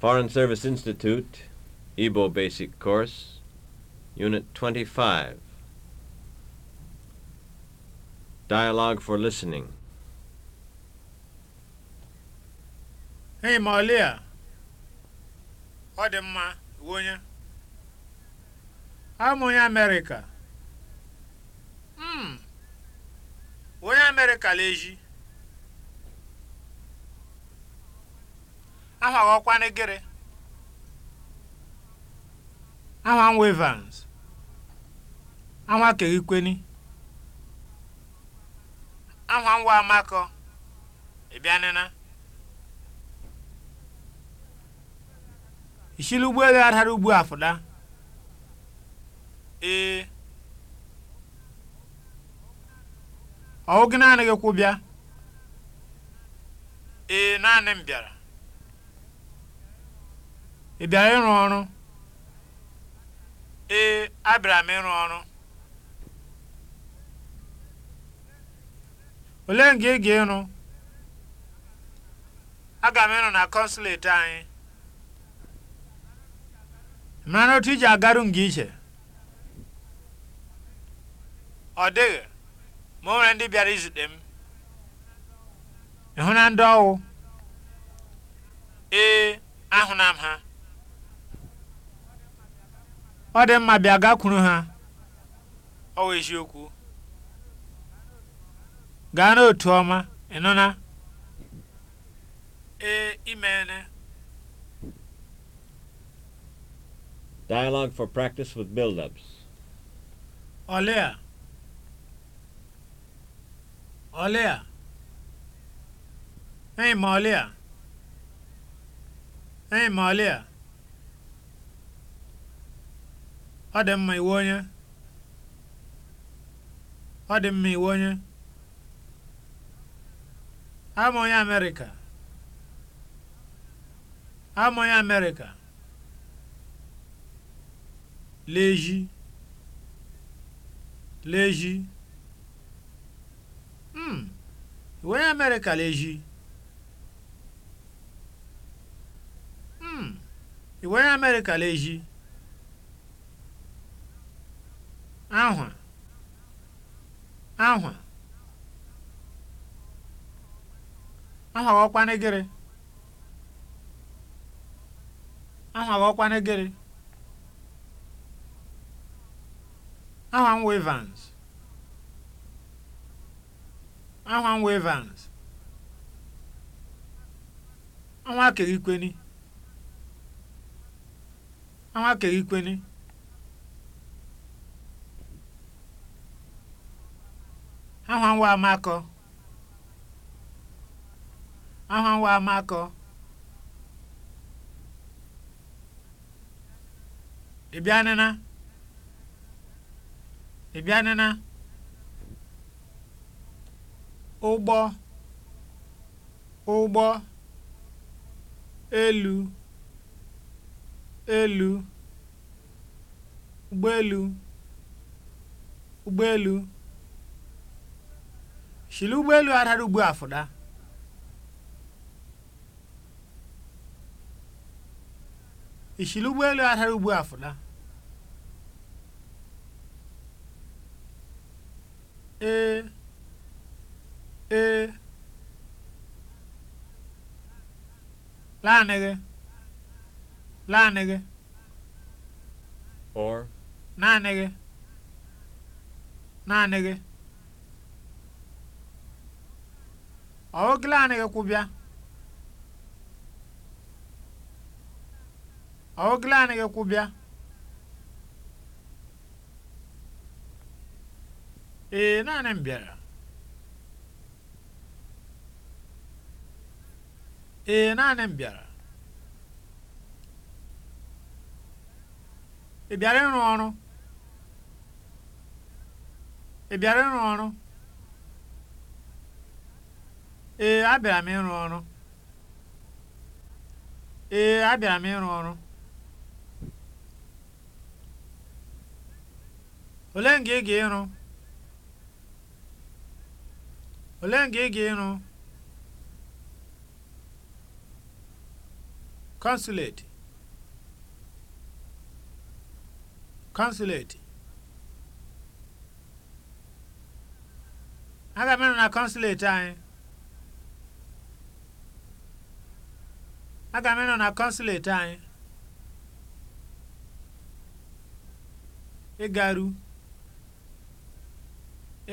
Foreign Service Institute, Igbo Basic Course, Unit 25. Dialogue for Listening. Hey, Malia. Ọ dị mma, onye. Abụ m onye Amerịka. Mm. Onye eji. aha ghọkwanụ gịrị aha nwevans aha keghikweni aha nwa amakọ ịbịanịna ishili ụgbọelu adara ugbu afụda ee ọwụ gị naanị gị kwụ ee naanị m bịara ị bịara ịrụ ọrụ ee abịara m ịrụ ọrụ olee nga ị ga-ịrụ aga m ịrụ na kọnsụleti anyị mara otu iji agaru nga iche ọ dịghị ma o nwere ndị bịara izute m ịhụ na ndị ọwụ ee na m ha ọ dị mma bịa gakwuru ha ọ wụ eziokwu gaa n'otu ọma ịnụna ee imeene Dialogue for practice with build-ups. Olea. Olea. Hey, Malia. Hey, Malia. ọ dị mma iwe onye ọ dị mma iwe onye ama onye amerịka ama onye amerịka leji leji mm iwe onye amerịka leji mm iwe onye amerịka leji ahwa ahwa ahwa ghọkwana gịrị ahwa ghọkwana gịrị ahwa m wevans ahwa m wevans ahwa kerikweni ahwa kerikweni aha nwa amakọ aha nwa amakọ ị bịanịna ụgbọ ụgbọ elu elu ụgbọelu ụgbọelu shili ụgbọelu a dara ugbu a fụda ishili ụgbọelu a dara ugbu a fụda ee ee laanị gị or naanị gị Ọ kikubya awogilani kikubya ee eh, naani m bịara. ee eh, naanị n biɛla ee abịara m ịrụ ọrụ ee abịara m ịrụ ọrụ ole nga ị ga-ịrụ ole nga ị ga-ịrụ consulate consulate aga m ịrụ na consulate anyị aga m ịnọ na kọnsụleti anyị ịgaru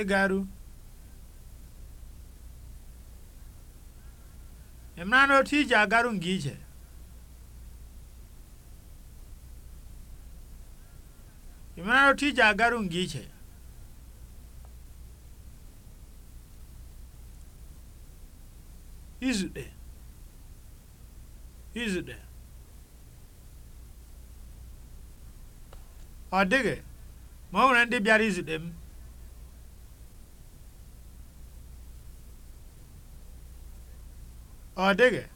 ịgaru ị na otu ije agaru nga ije ị na otu ije agaru nga ije izute Use it then. Ọ dịghị ma ọ nwere ndị bịara izute m. Ọ ndị bịara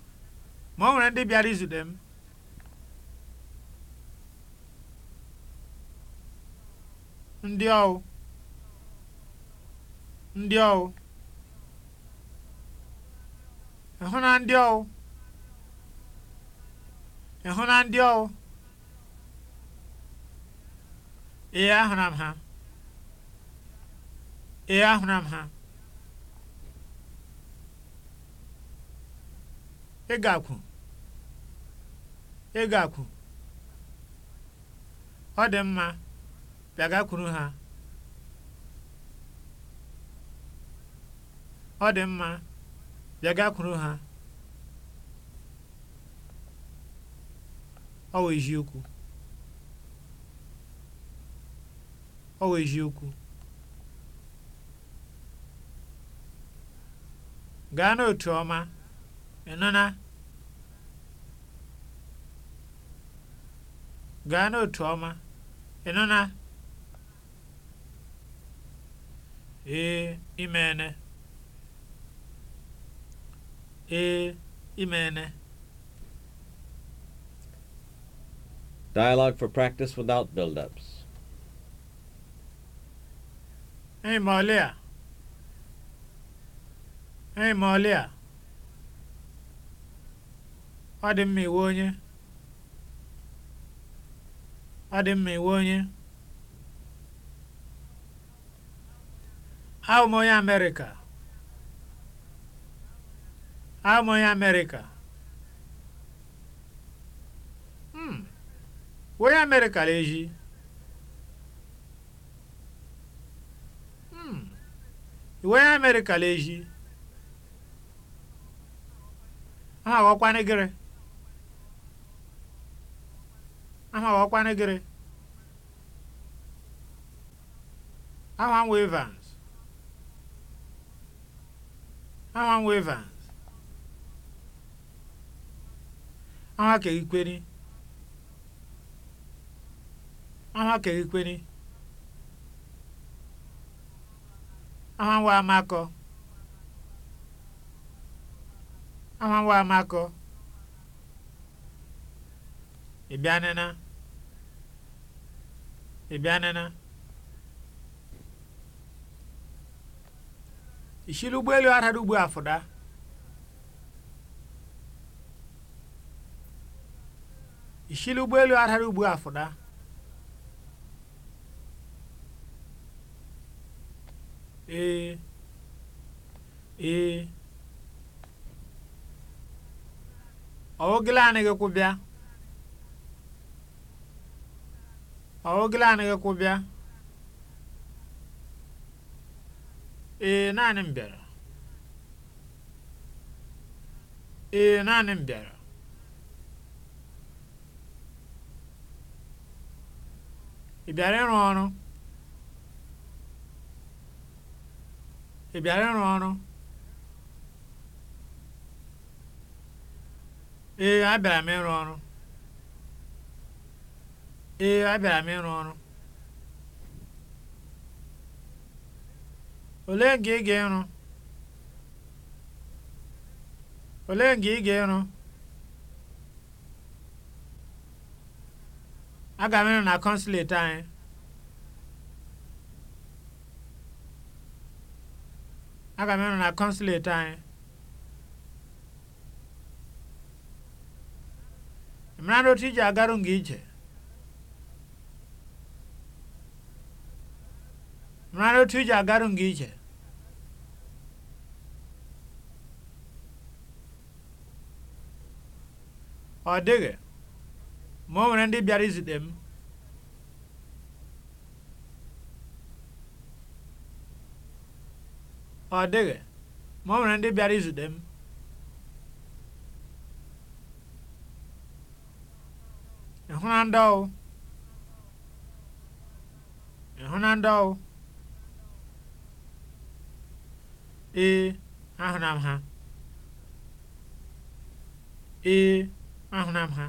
Ndị ọwụ. Ndị ọwụ. Ịhụ na ndị ọwụ. ị hụ na ndị ọwụ ee ahụra m ha ee ahụra m ha ị ga-akwụ ị ga-akwụ ọ dị mma bịagakwuru ha ọ dị mma bịagakwuru ha Ọ wụ eziokwu. Ọ wụ eziokwu. Gaa n'otu ọma, ị nụna? Gaa n'otu ọma, ị nụna? Ee, imene. Ee, imene. Dialogue for practice without build-ups. Hey, Malia. Hey, Malia. Ọ dị mma iwe onye. Ọ dị mma iwe onye. Abụ m onye Amerịka. Abụ m onye Amerịka. Onye mere kara eji? Hmm. Onye mere kara eji? Aha aghọkwana gịrị? Aha aghọkwana gịrị? Aha m Evans. Aha m Evans. Aha ka ikweri. ama ama nwa amákèékpéní amánwá amákọ amánwá amákọ ìbíánínà ìbíánínà ìṣílú ụgbọelu aradugbu afụda ìṣílú ụgbọelu aradugbu afụda ee ee anyị ku bịa awugilaniga ku bịa ee naanị m bịara ee naanị m bịara ị bịara ịrụ ọrụ ị bịara ịrụ ọrụ ee abịara m ịrụ ọrụ ee abịara m ịrụ ọrụ olee nke ị ga-ịrụ olee nke ị ga-ịrụ aga m ịrụ na kọnsuleti anyị aga m na kọnsuleti anyị mara na otu iji agarụ nga ije mara na otu agarụ nga ije ọ dịghị ma o nwere ndị bịara izute m ọ dịghị ma ọ nwere ndị bịara izute m ịhụna ndị ọwụ ịhụna ndị ọwụ ee ahụna m ha ee ahụna m ha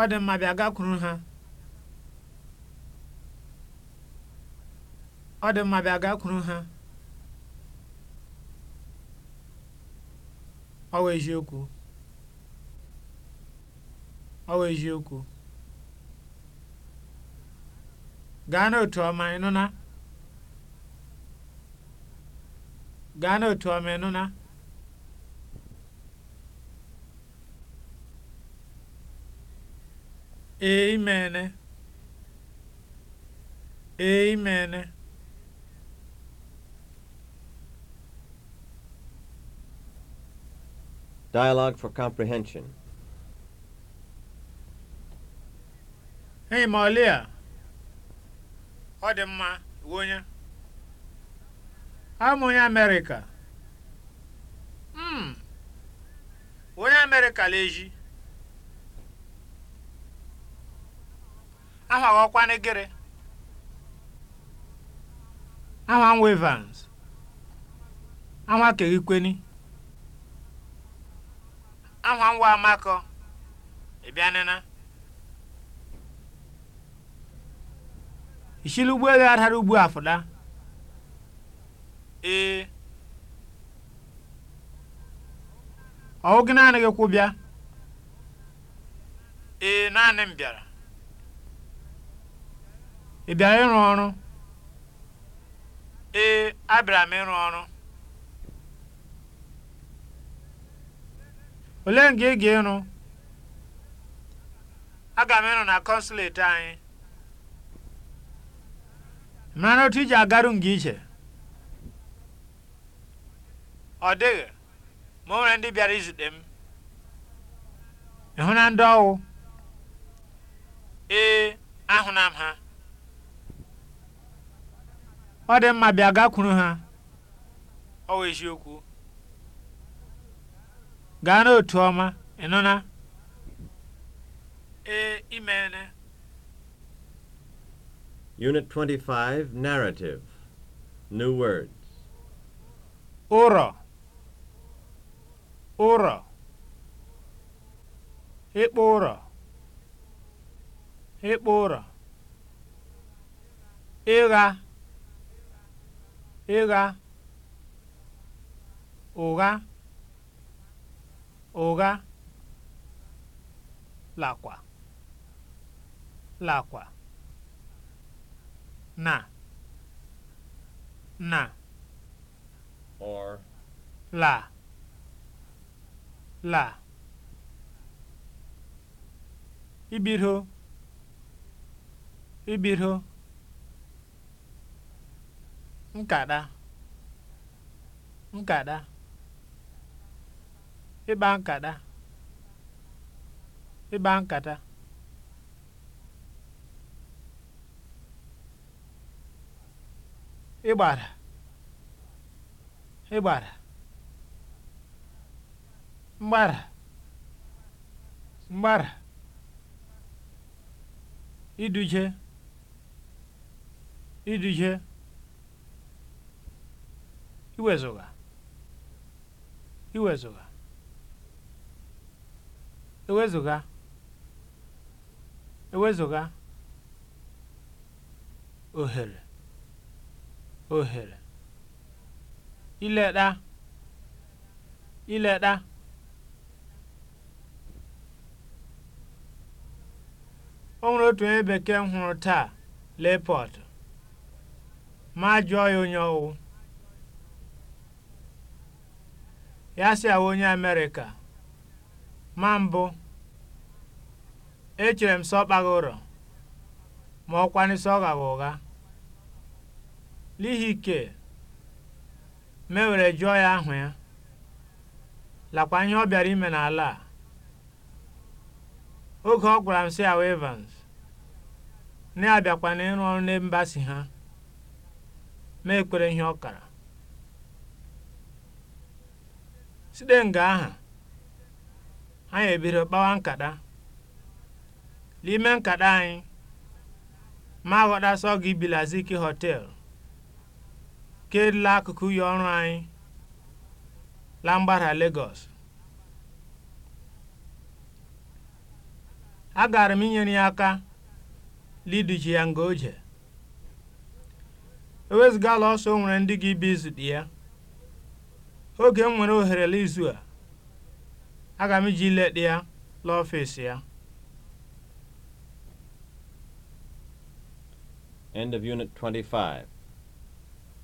ọ dị mma bịa gakwuru ha ọ dị mma bịa gakwuru ha ọ wụ eziokwu ọ eziokwu gaa n'otu ọma ị nụna. gaa n'otu ọma ị nụna. ee ene. ee ene. Dialogue for Comprehension. Hey, Malia. Ọ dị mma, onye. Amụ onye Amerịka. Mm. Onye America hmm. leji. Aha ọkwa n'egere. Aha Wevans. Aha Keghikweni. ahụ nwa amakọ ị bịanịna ishili ụgbọelu adara ugbu afụda ee ọwụ gị naanị gị kwụ ee naanị m bịara ị bịara ịrụ ọrụ ee abịara m ịrụ ọrụ olee nga ị ga-ịrụ aga m ịrụ na kọnsuleti anyị mara otu iji agaru nga ije ọ dịghị ma ọ nwere ndị bịara izute m ị hụ na ndị ọwụ ee ahụna m ha ọ dị mma bịa gakwuru ha ọ eziokwu gaa n'otu ọma ị na ee imeene Unit 25 Narrative New Words ụrọ ụrọ ịkpụ ụrọ ịkpụ ụrọ ịgha ịgha ụgha ụgha lakwa lakwa na na or la la ibido ibido nkada nkada ịkpa nkata ịkpa nkata ịgbara ịgbara mgbara mgbara iduje iduje iwezụga iwezụga ewezụga ewezụga ohere ohere ileta ileta o nwere otu onye bekee m hụrụ taa lepọt ma jụọ ya onye ọwụ ya si awụ onye amerịka Ma mbụ, echere m sị ọ ụrọ ma ọ kwanụ ọ ụgha. N'ihi ike mewere jụọ ya ahụ ya, lakwa ihe ọ bịara ime n'ala a. Oge ọ gwara m sị Evans, na abịakwa na ịrụ ọrụ na mba ha, ma ekwere ihe ọ kara. Site nga aha anyị ebido kpawa nkata n'ime nkata anyị ma aghọtasọ gị bilaziki họteelụ kedla akụkụ ya ọrụ anyị la mgbada Lagos agara m inyere ya aka liduje ya nga oje ewezugala ọsọ nwere ndị gị bi izute ya oge m nwere ohere n'izu a Aga m eji leet ya laa ya. End of Unit 25.